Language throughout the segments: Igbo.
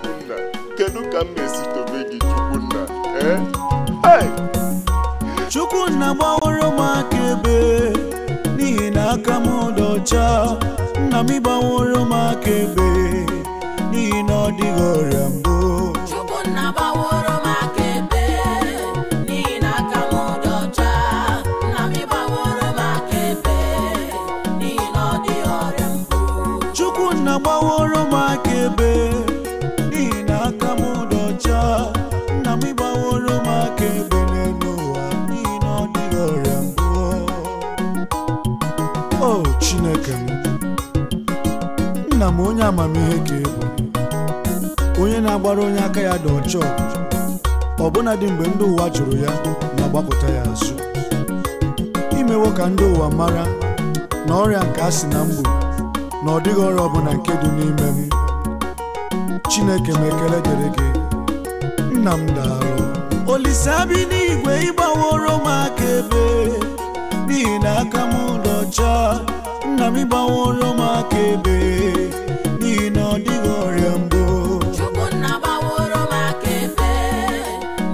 nna kedu ka m na tobe gị chukwunna ee eh? chukwunna gbaworo m aka ebe n'ihi na aka m dị ọcha nna m gbaworo m aka ebe n'ihi na ọ dịghị ọrịa mbụ chukwunna gbaworo m aka ebe n'ihi na aka m dị ọcha nna m gbaworo m aka ebe n'ihi na ọ dịghị ọrịa mbụ chukwunna gbaworo m aka ebe chineke m nna m onye amamihe ka ị bụ onye na-agbara onye aka ya dị ọcha ọbụna dị mgbe ndị ụwa jụrụ ya ma gbapụta ya azụ imewo ka ndị ụwa mara na ọrịa nke a sị na mgbu na ọ dịghị ọrịa ọbụla nke dị n'ime m chineke m ekele dịrị gị nna m daalụ Olise bi n'igwe ịgbaworo m aka ebe n'ihi na aka m ụlọ ọcha kàmí bá wọn ló máa kéde ní iná dígọ̀ rẹ̀ na bọ̀. chukwunna bá wọn ni na kéde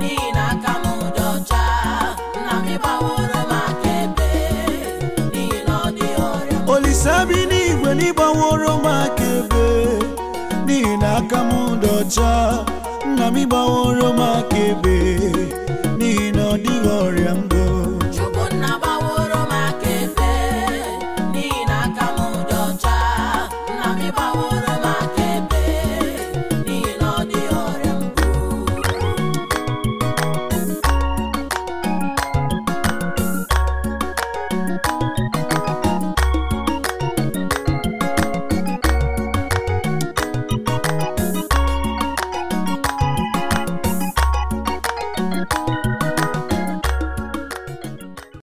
ní iná kàmú dọ̀jà nàmí bá wọn ló máa kéde ní iná dígọ̀ rẹ̀ ń bọ̀. olùsàbí ní ìgbẹ́ ní bá wọn ló máa kéde ní iná kàmú dọ̀jà nàmí bá wọn ló máa kéde.